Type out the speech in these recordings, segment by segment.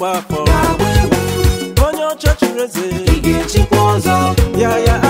mgbakọ onye ọcha chiri ị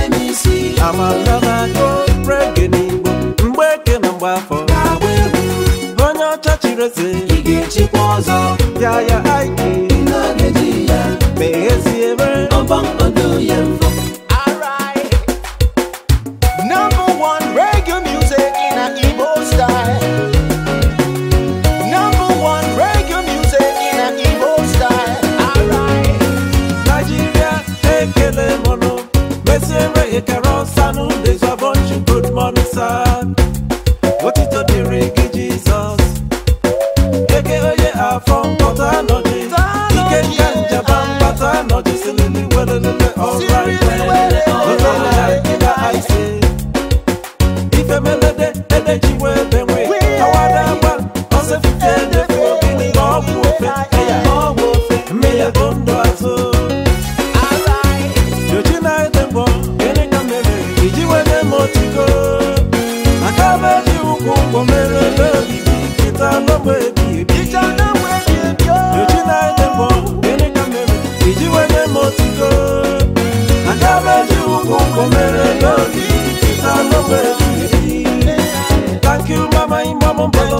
amala na-akụ reggae n'Igbo mgbe eke na mgbe afọ onye Yeah yeah. eze ị ga-echikwa ọzọ ya ya aiki meghezie ebe ọbọnkodo ya mfọ Come and love me, it's a love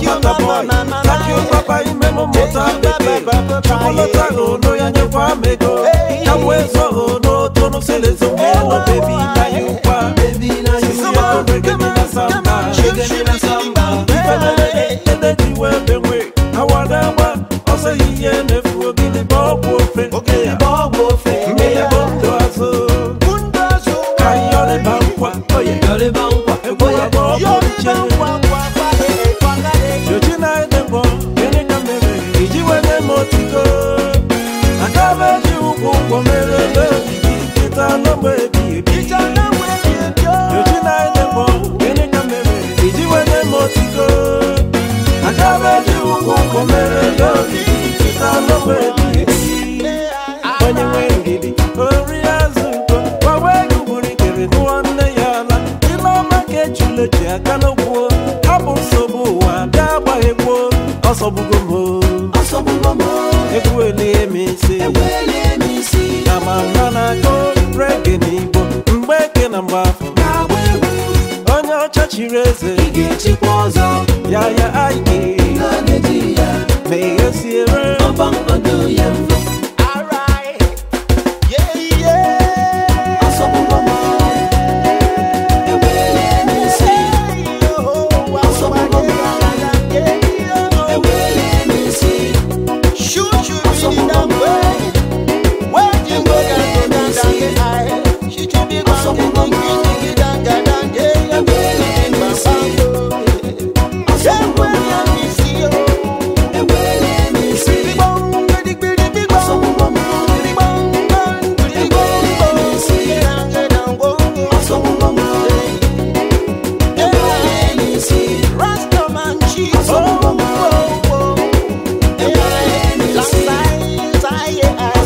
you boy, thank you papa imemo mota bebe chukwu lọta no, ya nyekwa m ego otuto aga eji ụkwụ ụgwọ merele ebi oh! na-enye iji m aga eji ụkwụ ụgwọ merele ogige nkịta ebi onye azụ gbawa ego gburu nne ya ala dị n'ọma ka aka n'okwu nsogbu ọsọ